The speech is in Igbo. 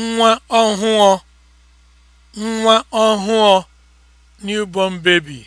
nwa ọhụụ nwa ọhụụ (newborn baby)